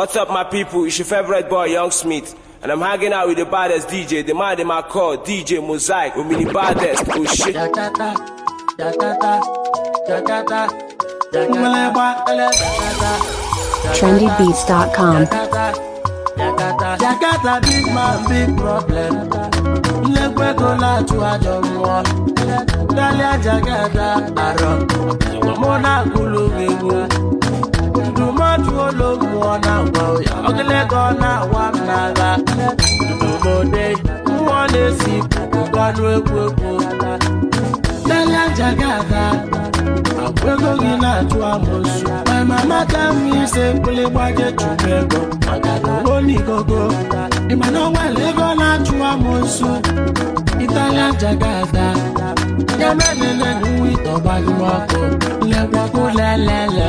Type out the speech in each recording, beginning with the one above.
What's up, my people? It's your favorite boy, Young Smith. And I'm hanging out with the baddest DJ, the man in my car, DJ Mosaic, with me the baddest. Oh shit. Da, da, da. Da, da, da. Da, da, da. TrendyBeats.com Jakarta big man big problem Nlekwe go láti àjọ mọ́ Dálé àjàgàdà àrọ̀ Mọ́nà kúlù gbẹ̀gbẹ̀ ajụola mmụọ na-agwa ya ọgịlego ọ na-awa m n'agha n'obodo mmụọ e, na-esi gbanụ egwu egwu tela nja gị aga ego gị na-atụ amụsụ ma amata m ise mkpụlị gbaje chụrụ ego maka na onigogo ịma na ọnwale ego na-achụ amụsụ ịtala nja gị aga ya mere nene nwa ịtọgbaghị ọkụ lekwago lelele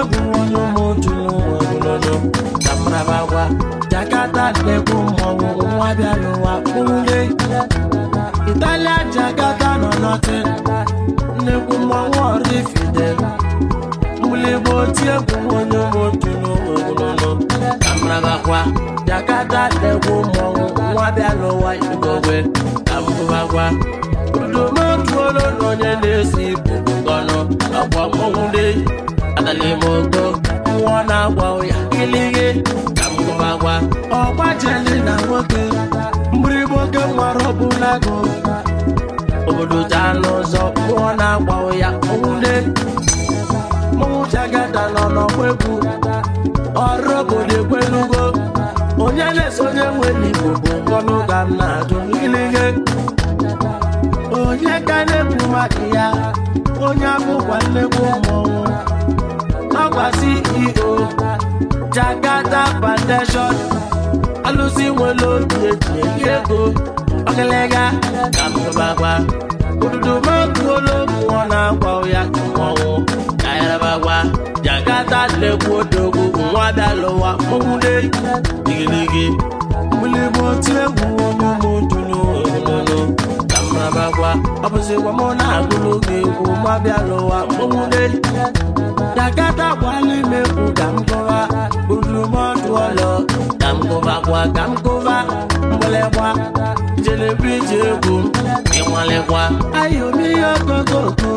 egwuọnụ ụmụotu n'ụwa ogologo na mrabawa jakata na-ekwu mmọnwụ nwa bịara ụwa italia jakata nọ nọtị nnekwu mmọnwụ ọrifide mgbụligbo oti egwu onye ụmụotu n'ụwa ogologo na mrabawa jakata na-ekwu mmọnwụ nwa bịara ụwa idobe na onye na-esi ibu ọnụ ọgwa mmọnwụ na n'ime ogo nwa na-agwa ya ilighe ka mmụba gwa ọgbajeli na nwoke mgbịrịgba oge nwara ọbụla gụ obodo anụ ụzọ nwa na ya ụya nwule mụnwụchagada nọ n'ọgba egwu ọrụ obodo ekwelugo onye na-eso onye nwere igbo bụ ngọnụ ga m na-ajụ ilighe onye ka na-ekwu maka ya onye abụkwa ụmụ mmọnwụ ọkwa CEO Jakarta Foundation alụsị nwere obi eji eji ego ọkịlịga ka mbụbakwa odudu mụọ na-akwa ya mmanwụ ka yarabakwa Jakarta lekwu odogwu nwa dalụwa mụwule igirigi mbilibu na-abakwa ọ bụzikwa mụ na-agụrụ gị egwu ma bịa lụwa mkpụmụdeli dakata gwa n'ime kwu ka m gụwa urumọdụ ọlọ ka m gụbakwa ka m gụba mgbalịkwa jelebi ji egwu ịnwalịkwa ayomi ihe ogogo okwu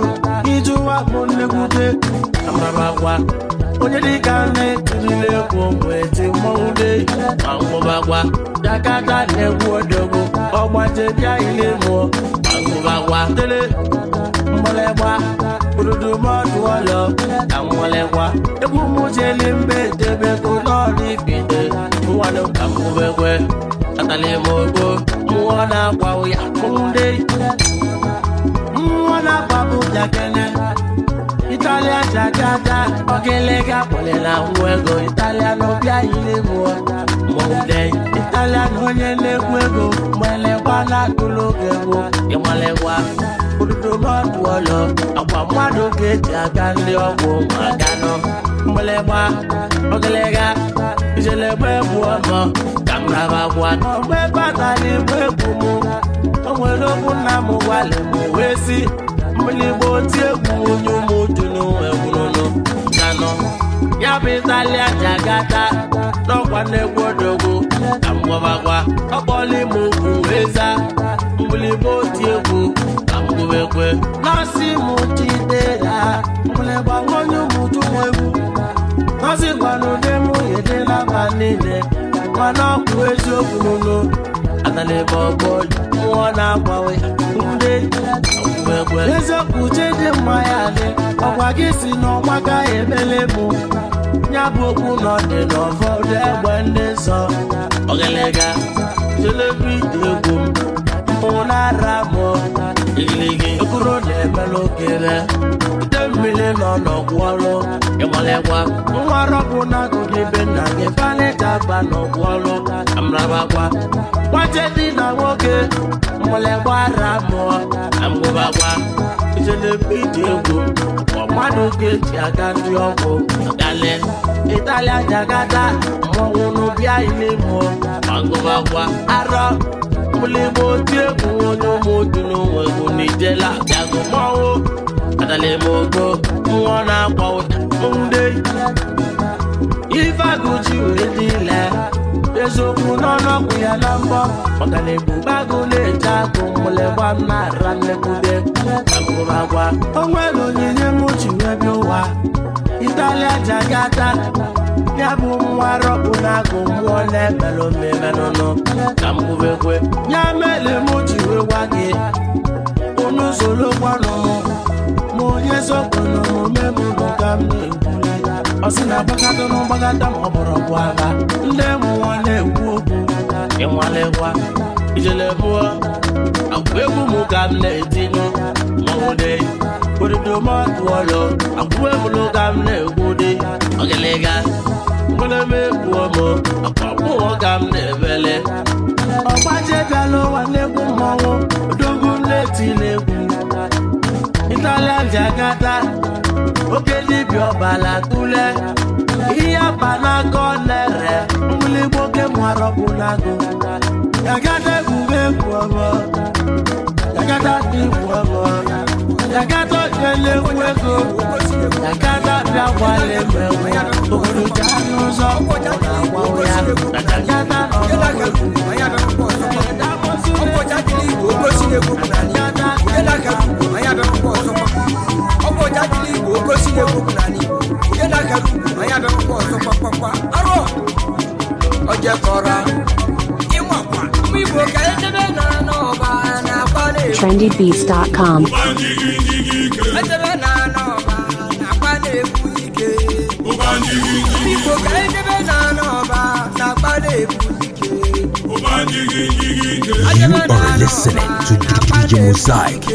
ịjụwa bụ nnekwute amarabakwa onye dịka na-etirile egwu weti mmọnwụ dey ma ngwụbakwa dakata na-egwu odogwu ọgbaje bịa ile mụọ wawa dele mgbolegba urudumọdụ ọlọ na mgbolegba egwu m jeli mbe debego ka na-agwa ya mmụọ na Italian chachata ọkịlịga kpọlịla nwa ego Italian ọbịa ilegbu ọta mọde Italian onye na-ekwu ego malekwa na-atụrụ oge bụ ịmalekwa odudomọdụ ọlọ agwa mmadụ ga-eji aga ndị ọgwụ ma ganọ mgbelegba ọgịlịga ijelegba egbu ọmọ ka m raba gwa ọgba ebe a tara igbu egbu mụ o nwere okwu nna m gwalị m wee si mgbịlịgba oti egwu onye ụmụ ntunu egwurunu nano ya bụ itali aja gata n'ọkwa na-egwu odogwu ka m gwabakwa ọkpọla ime ugwu eza. za mbulibe oti egwu ka m gwubekwe nọọsị mụ jidera mbuligbanwonye ụmụju m egwu nọọsị gwanụde m yedela ba niile mana ọ bụ eziokwu n'ụlọ atala ebe ọgbọ nwa na-agbawe ndị eziokwu chedị mmanya ya Nwa gị si n'ọnwa gaghị emele bụ ya bụ okwu na ọdị n'ụfọdụ egbe ndị nsọ ogelega telebi egwu ụnara mụ igiligi okoro na-emele okere ite mmiri nọ n'ọgwụ ọrụ ịgbalịkwa nwa rọbụ na-agụgị be nna gị fanịta ba n'ọgwụ ọrụ amrabakwa nwaje dị na nwoke mmalịgbara mụọ amgụbakwa itelebi egwu mmadụ ga-eji aga ndị ọgwụ ịtalịa jagada mmọnwụ n'ụbịa ilemo agụmagwa arọ mụlịgbo oti egwu onye ụmụotu n'onwe egwu n'ijela bịagụ mmọnwụ adalemogo nwa na-akwa ụda ndị ifeagụji wee dị ile eziokwu n'ọnụọgwụ ya na mbọ ọganebubagụ na-eje agụ mụlegba nara mmegbude agbụrụ agwa o onyinye m ji wee ụwa italia jagata ya bụ mmụọ na-ebelụ ya ji gị unu ma onye omume m bụ ka m na ọ sị na agbagado na mgbagada ma ọ bụrụ bụ agha ndị mụwa na-ekwu okwu ịnwalekwa ijele bụọ agwa egwu m ka m na-etinụ etinye mọwụde oridomatụọlọ agwa ebulu ka m na-egwu dị ọgịlịga mgbaleme egwuo m akwa mụọ ka m na-ebele ọgbaje bịala ụwa na-egwu mmọnwụ karịa njakata oke dibịa ọbala tule ihe aba n'aka nere mgbụligbo oke mwarọbụlago jagata egwuwe egwuọbọ jagata igwuọbọ jagata ojele egwu ego jagata bịa gwala emewe n'ụzọ ya n'akụkọ igbo oke na-ekwu okwu igbo onye na-akara ugwu na ya bịa ọzọ kpakpakpa arụ ojekọra ịmakwa mgbe igbo ka edebe nara n'ọba na-akpa na-egbu edebe nara n'ọba na-akpa na ike ka edebe na-akpa na ike You are listening to DJ Mosaic.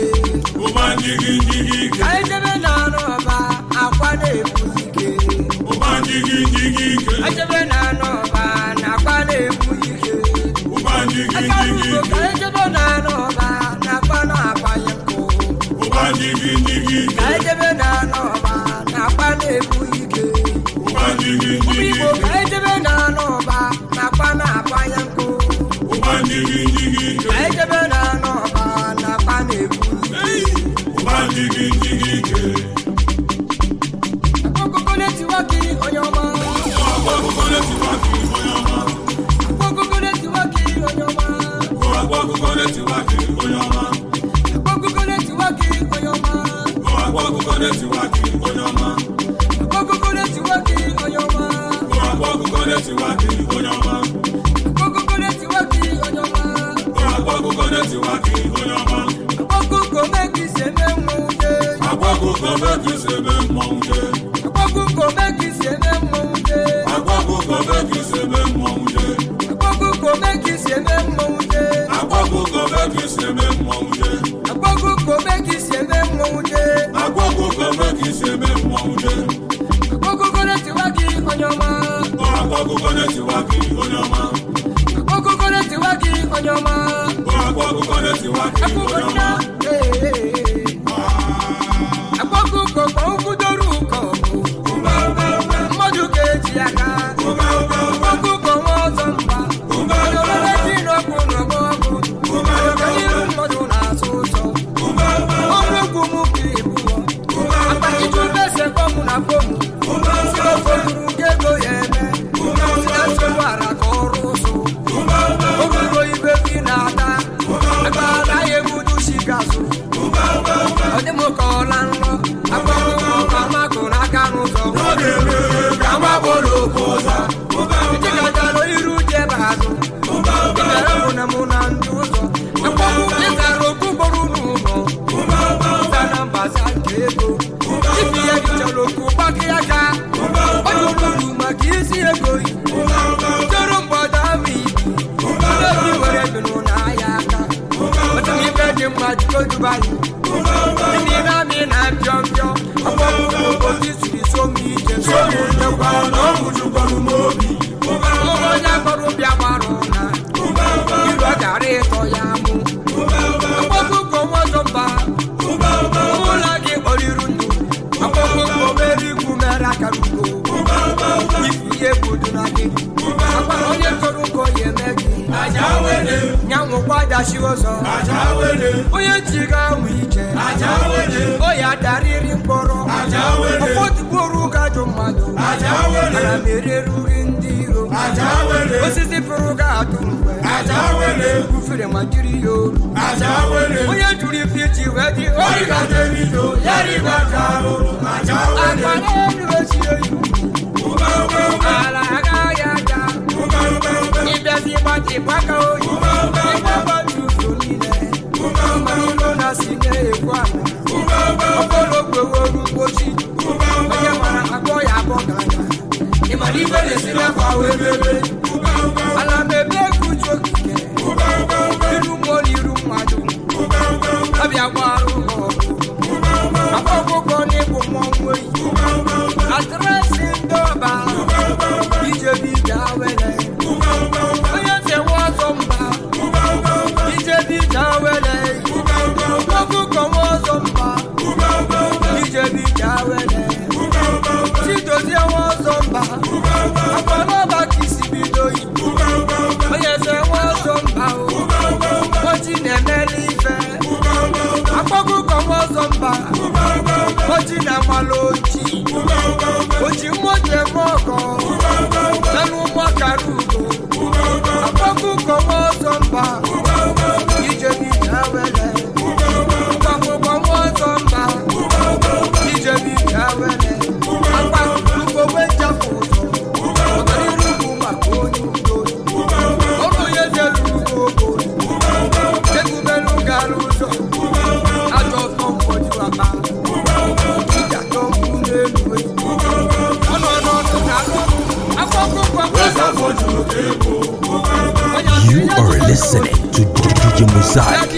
side.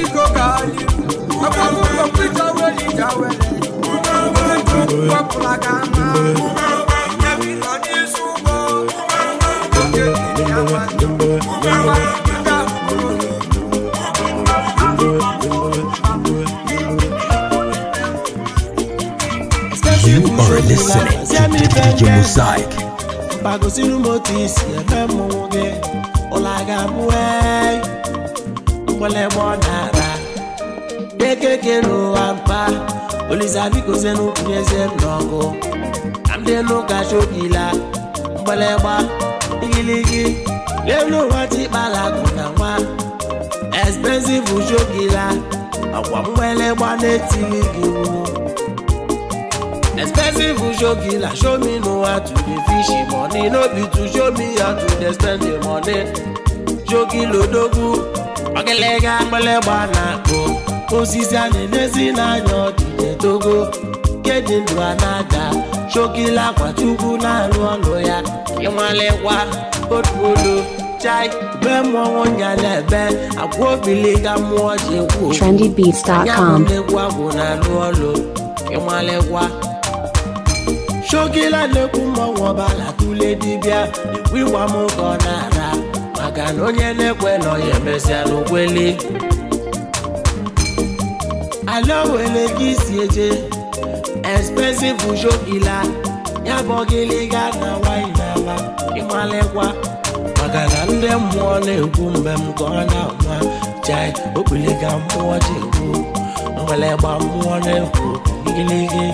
You are listening to DJ Mosaic. bagosiri isi eme gị ụla ga-abụ nwere ebe ọ na-ara ekeke n'ụwa mpa olizabikoze n'ukwu eze n'ọgụ na ndị n'ụka chobila mgbalegba igiligi n'elu ụwa tikpala na nwa expensive chobila akwa mgbalegba na-etili gị expensive chobila show me n'ụwa to the fish money no be to show me how to dey spend the money jogi lodogu ogelege akpịlịgba na-akpụ osisi a na-enezi n'anya ọdịde togo nke dị ndụ a na-ada chokila akwa chukwu na-alụ ọlụ ya ịnwalekwa otuolu chai be mmọnwụ nyalebe agwa ga mmụọ ji kwu anyabụlegwa bụ na-alụ ọlụ ịnwalekwa chokila na-ekwu mmọnwụ ọbala tule dibịa ikwu ịgwa m ka ọ na-ara maka na onye na-ekwe nọ ya emesịa n'okweli ala gị si eje expensive ujo ila ya bụ gịlịga na wine n'ala ịmalekwa maka na ndị mmụọ na-ekwu mgbe m ka ọ na-ama jai okpiliga mmụọ ji ekwu mgbelegba mmụọ na-ekwu gịlịgị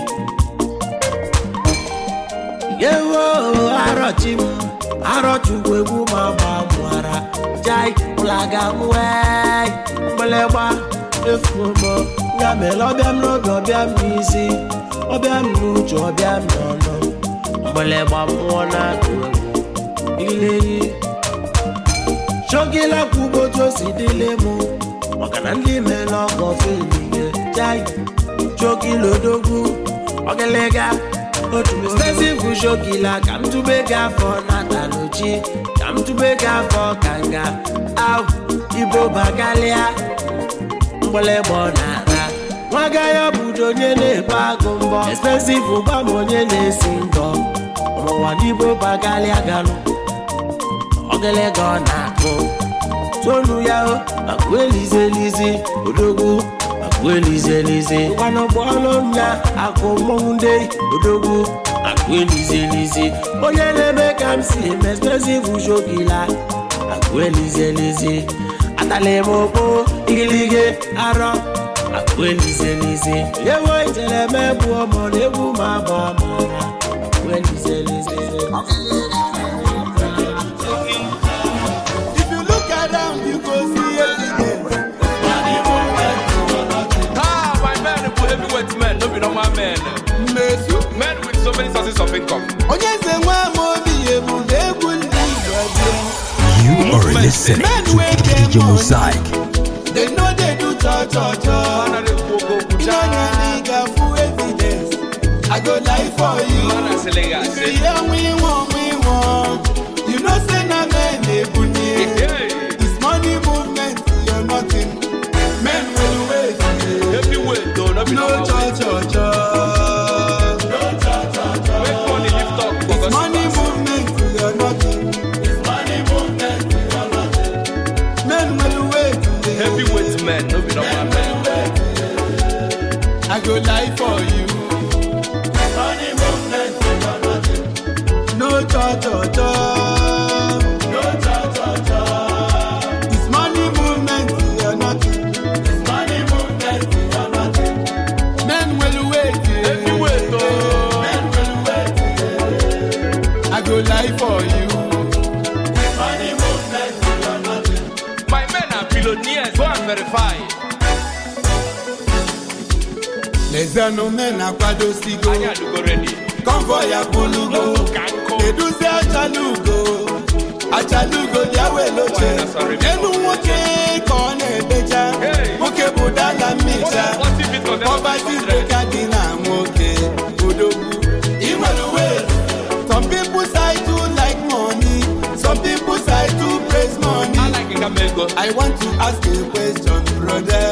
yewo arọchi m arọchukwu egwu ma gbamụara jai plagawe mgbelegba efumo ya mere ọbịam n'oge ọbịam n'isi ọbịam n'uche m n'ọnụ mgbelegba mmụọ na-atụ egwu ileyi chogila kwugbo otu o si dịle mụ maka na ndị mere ọgọ feliye jai chogila odogwu ọgịlịga stezi bujogila ka m tube gị afọ na taloji ka m tube gị afọ ka nga ahụ ibobakalịa mgbịlịgbọ na-ara nwaga ya budo onye na-ebu agụ mbọ expensive gwa m onye na-esi ndọ n'ụwa n'ibo bagalịa galụ ọgịlịga ọ na-akụ tonu ya o akụ elizi elizi odogwu akwelizelize akụ akụmọnwụde odogwu akwelizelize onye na-eme ka m si mespesiv shogila akwelizelize atalemokpo igilige arọ akwelizelize ewo ijeleme bụ ọmọ na egwu ma bụ amara akwelizelize Onye sources of income. You are listening to DJ Mosaic. They know they do cha cha cha. You full I go lie for you. Yeah, we want, we want. You know say na men they This money movement, you're nothing. Men will wait. miliọnụ na-akwadosigo konvoi abụlugo eduzi achalugo achalugo elu nwoke ka na nwoke bụ dala mmija poverty breaker dị na nwoke odogwu inwere I want to ask a question brother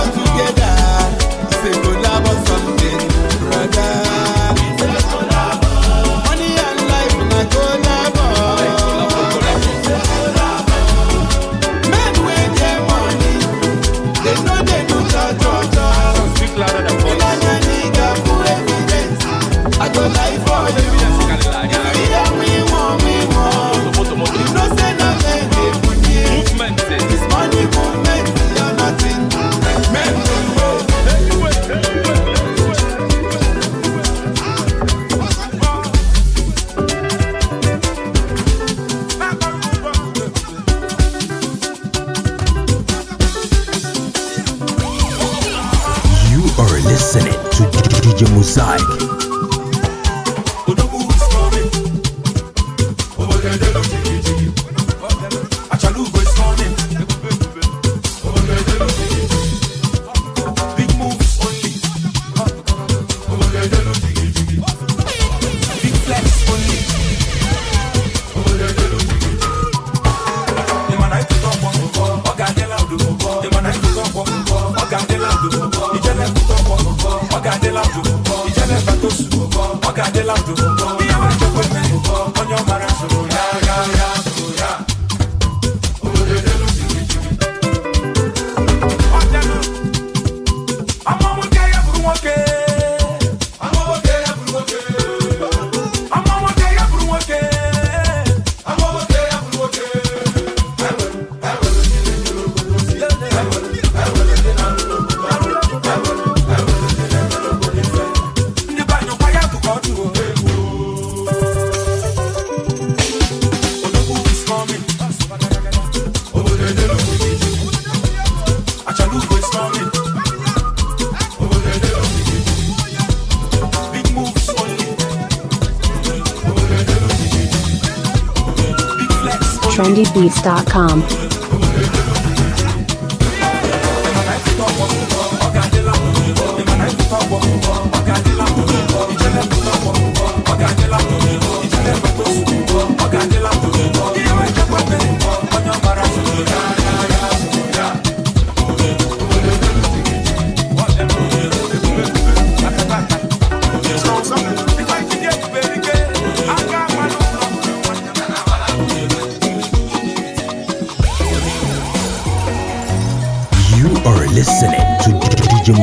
com.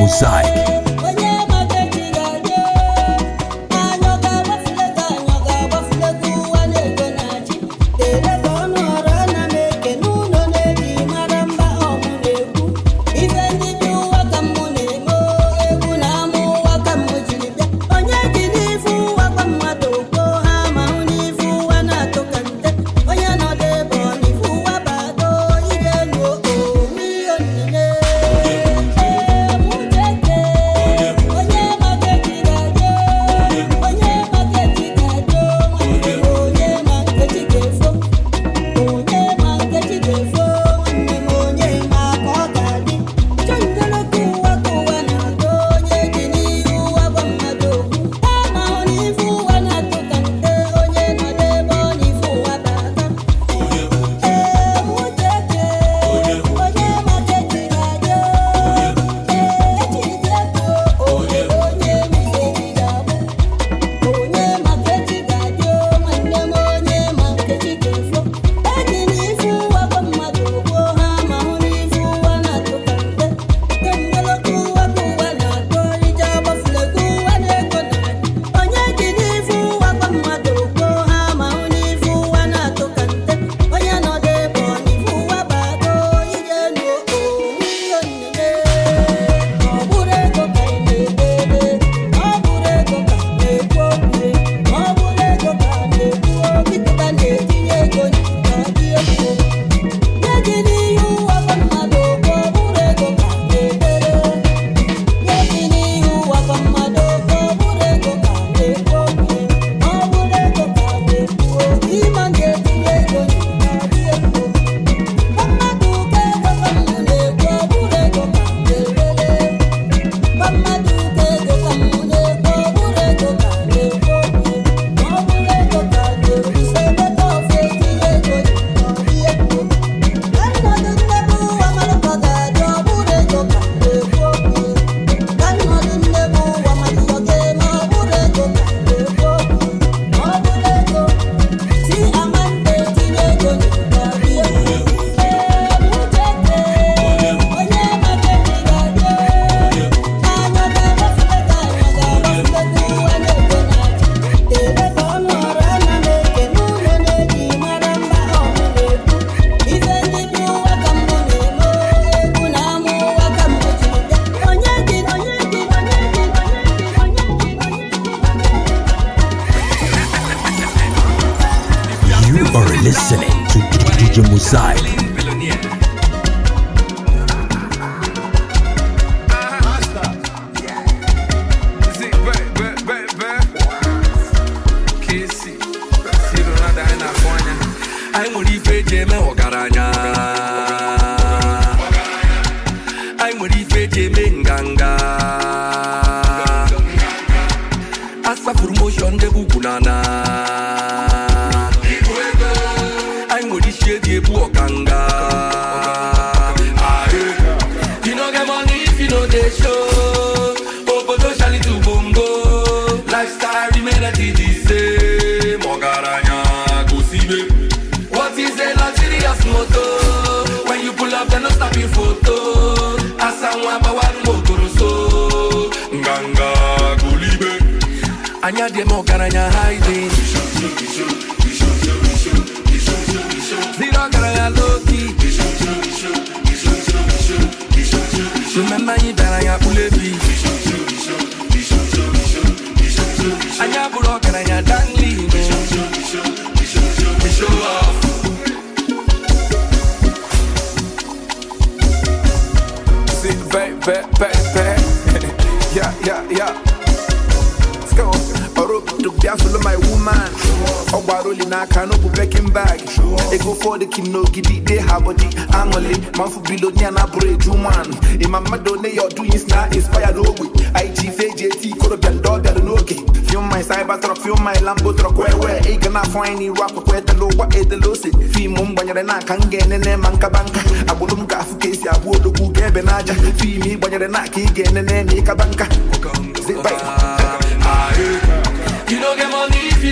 Mosaic. to DJ Mosaic. dị m ọgaranya haidin ziri ọgaranya loki mmemme anyị bịara ya kpulebi anyị abụrụ ọgaranya danli Baby, baby, yeah, yeah, yeah. bịa folo my woman ọ gbara oli n'aka n'obu bekin bag ego fọdụ kim n'ogidi ide ha bọdi aṅụli ma mfu bilonia na bụrụ eju nwanụ ịma mmadụ one ya ọdụ yis na inspire n'ogbe ig feji eti ikorobịa ndị ọ bịara n'oge fium my cyber truck fium my lambo truck wee wee ị ga na-afọ anyị n'iru akwụkwọ etela ụgwọ edela ose fiimu m gbanyere n'aka m ga-enene ma nkaba nka agbụrụ m ga-afụ ka esi abụ odogwu ga-ebe n'aja fiimu ị gbanyere n'aka ị ga-enene ma ịkaba nka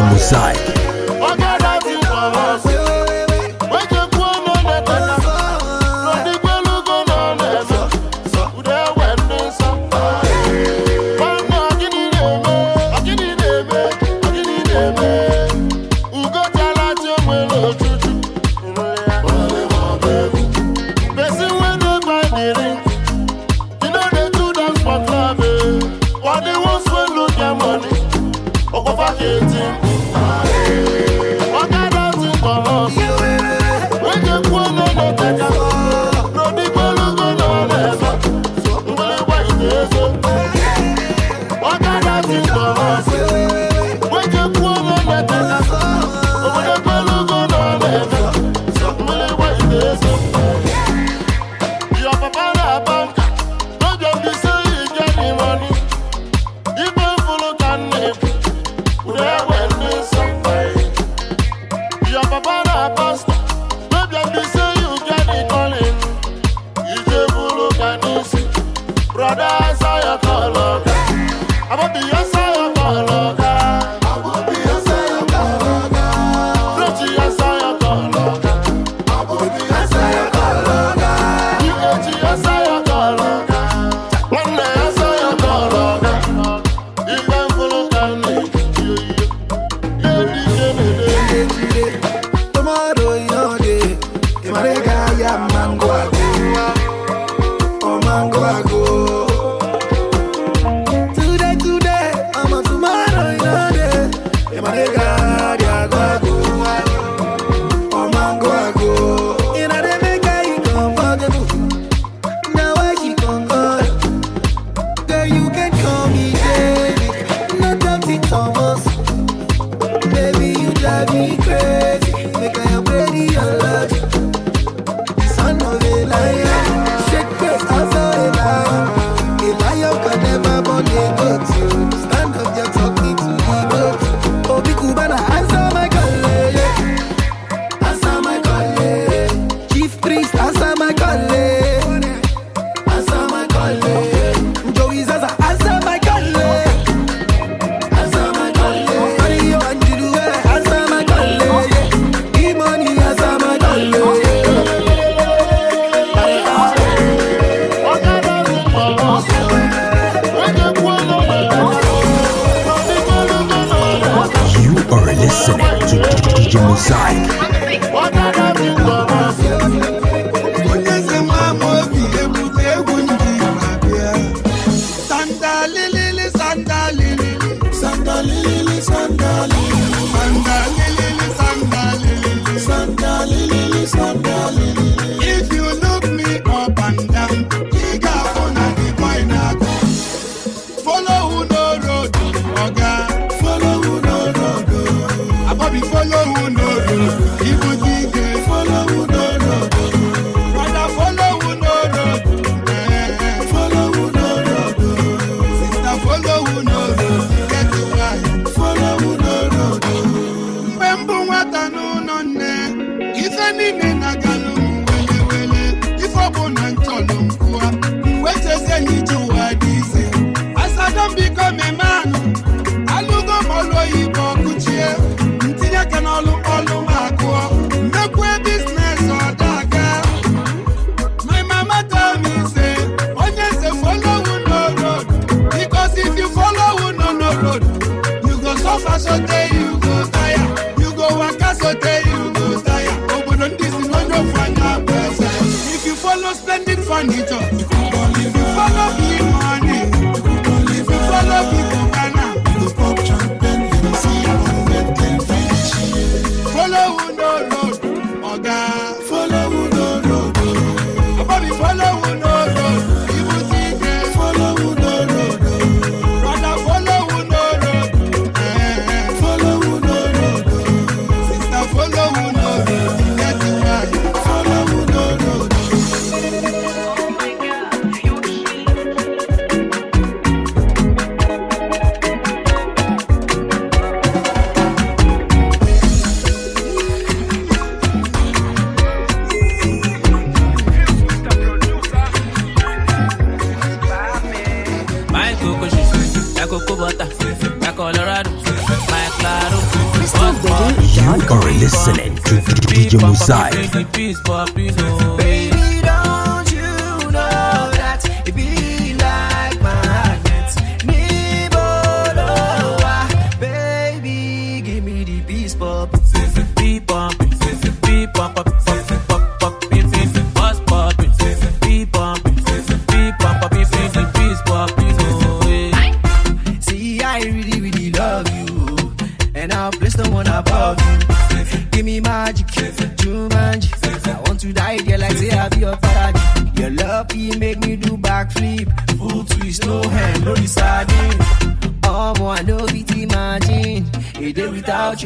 Radio Mosaic. If you furniture DJ Mosaic.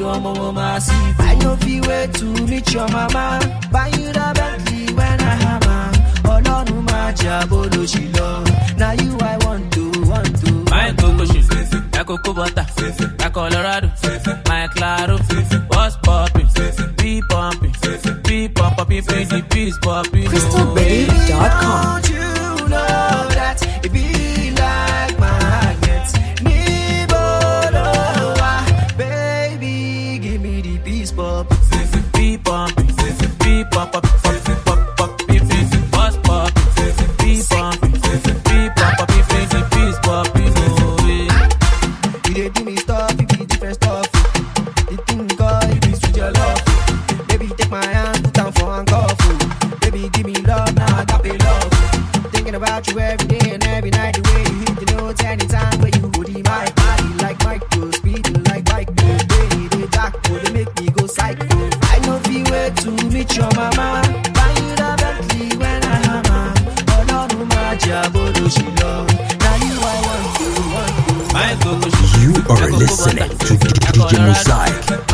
watch your mama see. I no feel way to meet your mama. Buy you the Bentley when I hammer. Ọlọ́run you I want to want to. Colorado Claro what's pumping peace thinking about you every day and every night. The way you hit the notes anytime wey you go my Body like micro, speeding like bike. The way they dark oh, they make me go psycho. I know be way to meet your mama. Buy you the Bentley when I hammer. but oh, no, no, my jabolo she love. Now you I want to, want to. You are listening to DJ Mosaic.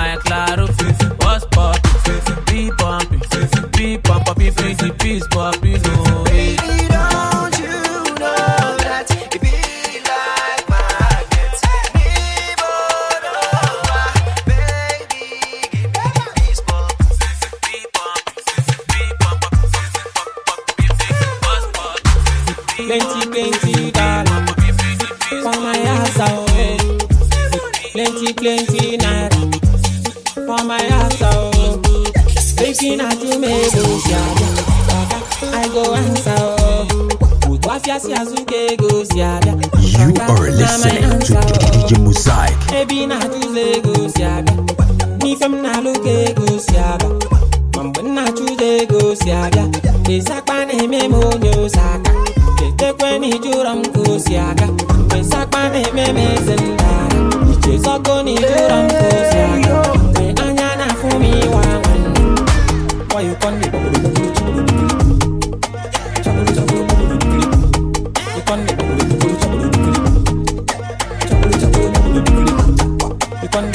fun.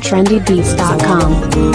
Trendybeats.com.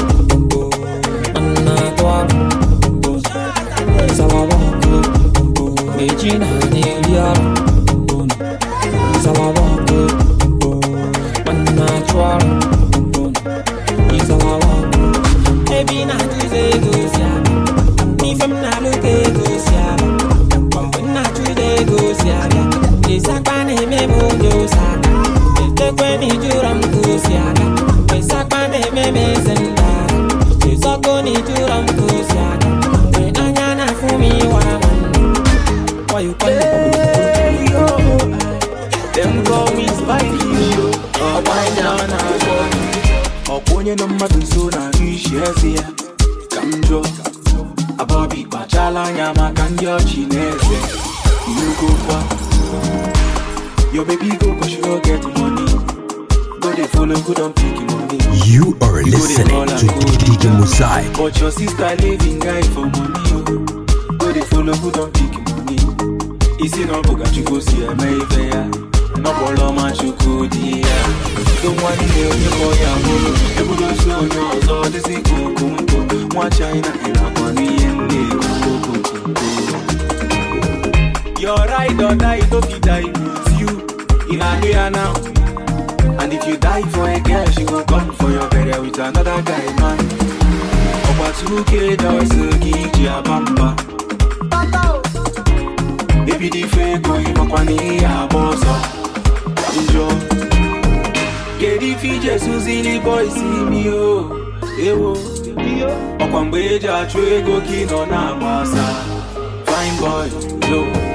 ride or die, it don't die with you. In a here now. And if you die for a girl, she gon' come for your burial with another guy, man. Ọ̀pá túkè dọ̀sẹ̀ kì í jẹ́ àbámbá. Ebi di fe ko ìmọ̀kwá ní àbọ̀ sọ. Njọ. Kedu ife ije suzili bọ́ìsì mi o? Ewo. Ọkwa mgbe eji achụ ego ka ị nọ na-agbasa. Fine boy, low.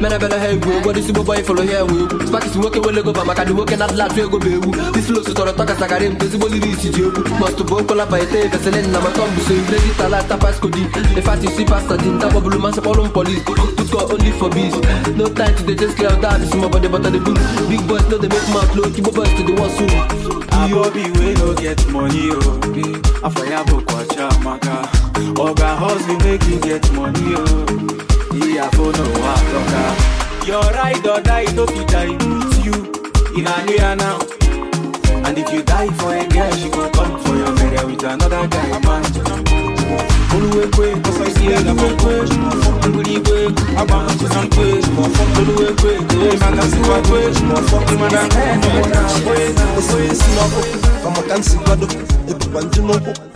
mere bere ha egwu ụfọdụ isi boboy fọrọ ha enwe egwu spakis nwoke nwere goba maka ndị nwoke na atụ ego bụ egwu dislos tọrọ tọkasagara m tezigbo liri isi ji egwu mọstụ bụ okola baite veselin na matọmbụso ibredi talata paskodi e efasisi pasta di nta kpọbụrụ masị kpọrụ m polis tutkọ only for biz no time to dey just clear out this small body but the bull big boys no dey make mouth low kibo boys to the soon. wey no get money o, oh, afọ ya bụ maka, ọ ihe afọ n'ụwa atọka your ride or die no fit die with you in a now and if you die for a girl she go come for your mere with another guy man oluwekwe kọsọsie na kwekwe ngwurigwe agba ntụsa nkwe oluwekwe kere maka nsikwa kwe ịmara nkwe na nkwe na nkwe si n'ọkụ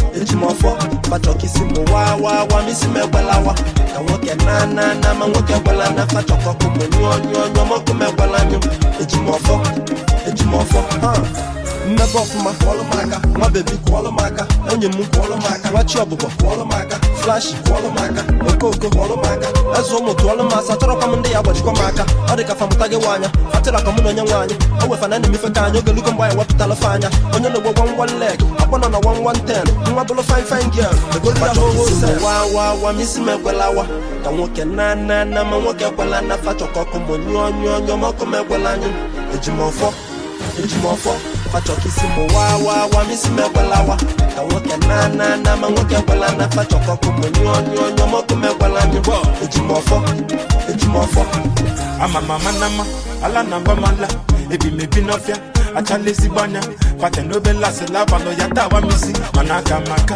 ejimofo fachọkisi m wa wa wa misi m ka nwoke na na na ma nwoke gwala na fachọkọkụ m nyụọ nyụọ nyụọ mọkụ m ejimofo nyụ echimọfọ ha mmepe ọfụma kwọlụ m nwa bebi kwọlụ onye aka enyi m kwọlụ m aka nwachi ọbụbọ kwọlụ m aka flashi kwọlụ m aka okoko kwọlụ m aka eze ụmụ tụọlụ m asa chọrọkwa m ndị ya gbajikwa m aka ọ dị ka famụta gị nwaanya fatịra ka mụ na onye nwaanyị o wefana na emefe ka anyị ogelugo mgbe anyị wepụtala fe anya onye na-egbo gwan wan leg akpọ nọ na wan wan ten nwa bụrụ fine fine girl egoliwawawa m isi ekwelawa ka nwoke na na na ma nwoke ekwela na fa chọkọkụ monyụọ nyụọ nyụọ ma m ekwela anyị eji ejimọfọ fachọkisi m waa waa waa misi m ekwelawa ka nwoke na na na ma nwoke ekwela na fachọkọkụ m nyụọ nyụọ nyụọ mọkụ m ekwela nyụọ ejimọfọ ejimọfọ ama mama na ala na mba mala ebi m ebi n'ọfịa achala ezigbo anya fata n'obe lasị labalụ ya tawa misi mana aka maka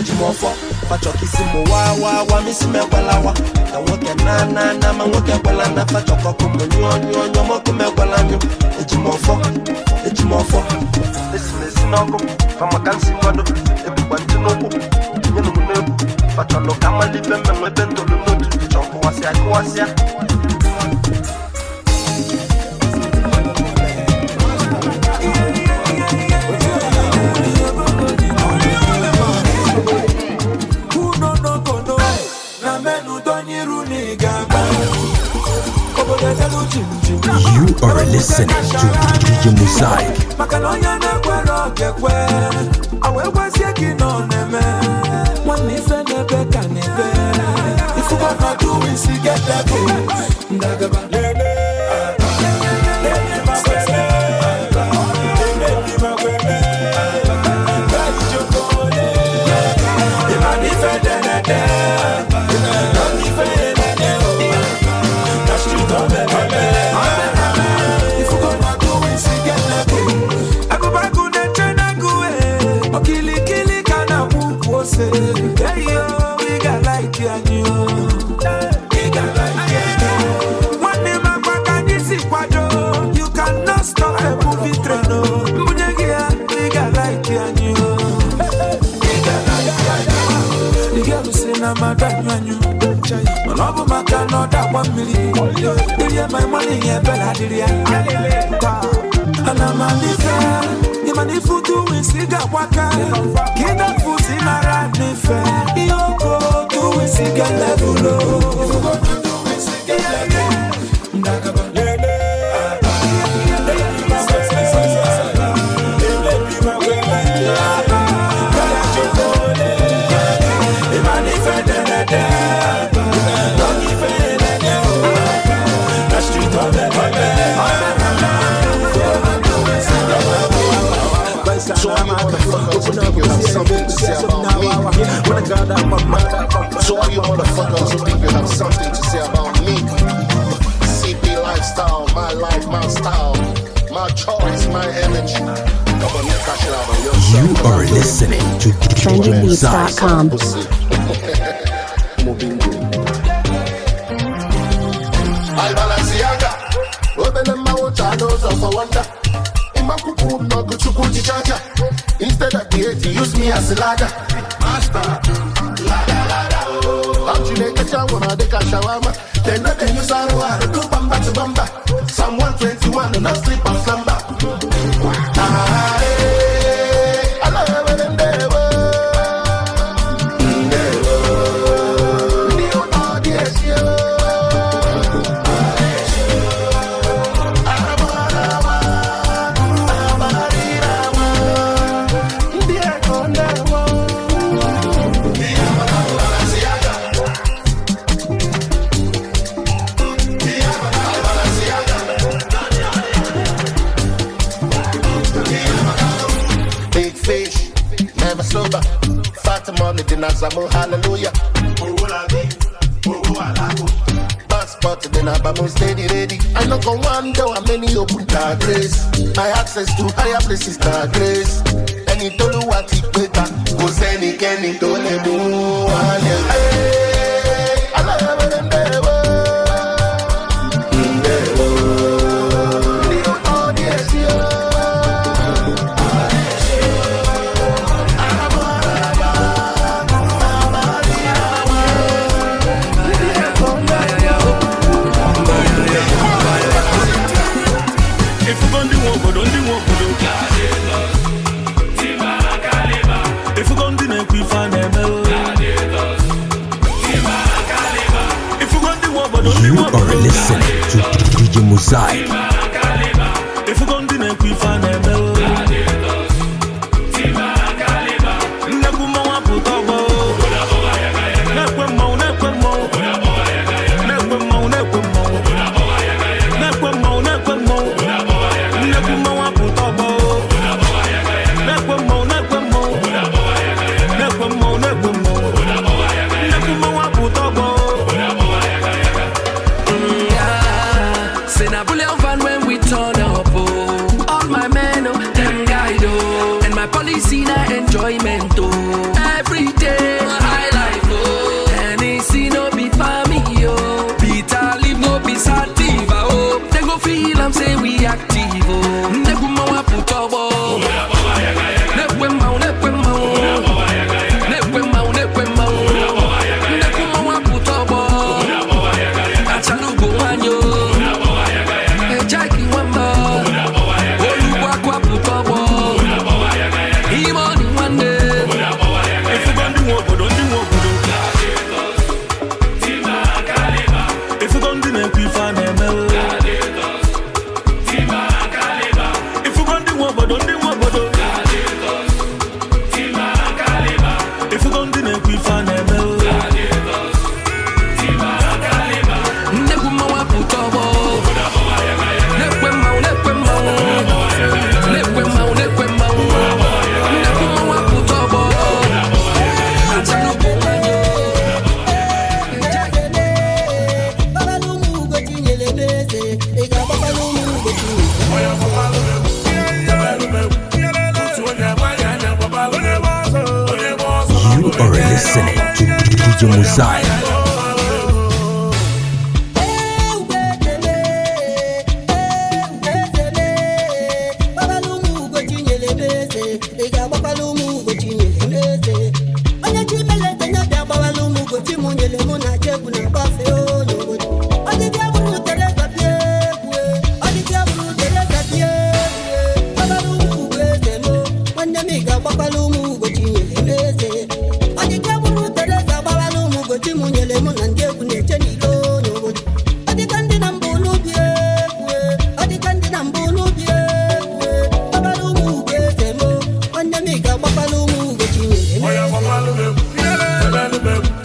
eji ọfọ fachọkisi m wa wa wa misi m ekwelawa ka nwoke na na na ma nwoke ekwela na fachọkọkụ m nyụọ nyụọ nyụọ mọkụ m ekwela nyụ eji m ọfọ eji ọfọ esi m esi n'ọkụ fa maka nsi kwado ebukwa ntị n'ụkwụ na m n'egwu fachọlụ ka mmalite mmenwe ebe ntolu n'otu chọkụwasịa kụwasịa You are listening to DJ Mosaic. maka na onye na-ekwere ọga-ekwe aweekwezie gị nọ na-eme nwanne ife na-ebe ka na-ebe ifuba na duwisi get that one million. Did my money here, Bella? Did you? And I'm a nife. You money for doing cigar waka. Get that foot in a rat nife. You go pocket. When I got out my mind, so all you motherfuckers who think you have something to say about me, CP lifestyle, my life, my style, my choice, my energy. You are listening to TrendyBeats.com. Instead of the hate, use me as a ladder. Chineke chawa ma a shawama. They know they use arụ my access to higher places, that grace. ma. alụmegwu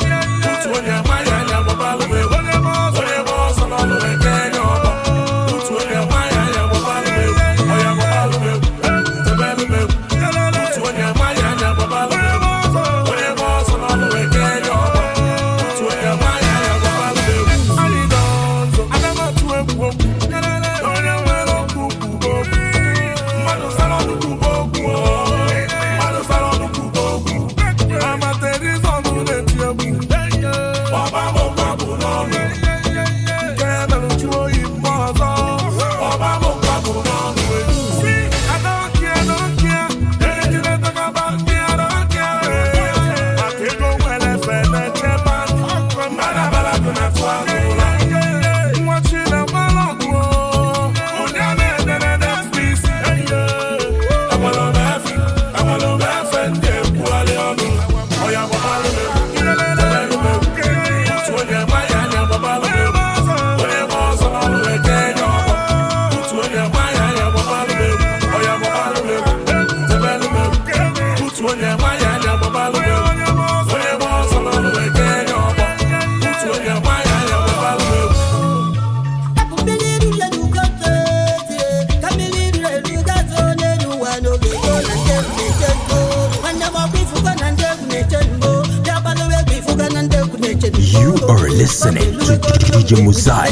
DJ Muzai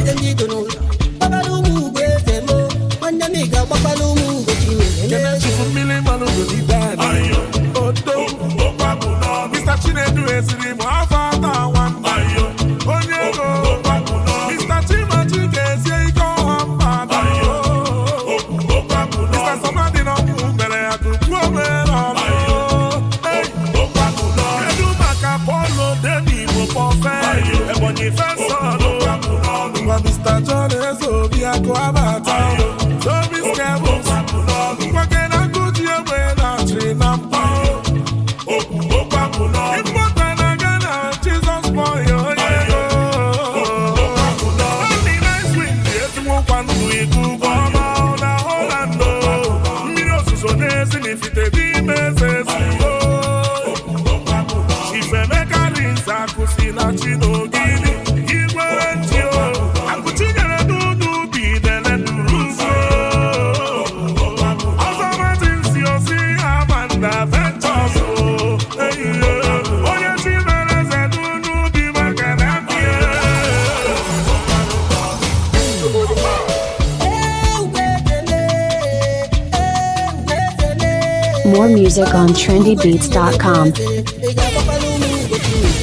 music on trendybeats.com.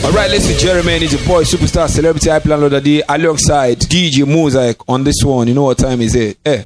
All right, listen, Jeremy and his boy, superstar, celebrity, high plan loader D, alongside DJ Mosaic on this one. You know what time is it? Eh.